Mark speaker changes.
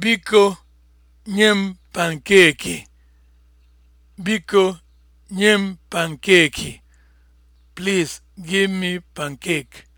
Speaker 1: Biko nye m pankeeki. Biko nye m pankeeki. Please give me pancake.